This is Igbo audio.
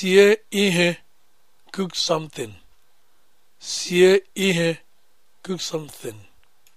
Sie ihe cook something. Sie ihe cook something.